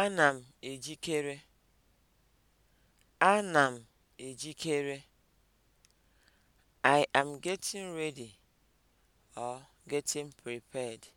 Ana m ejikere. Ana m ejikere. I am getting ready or getting prepared.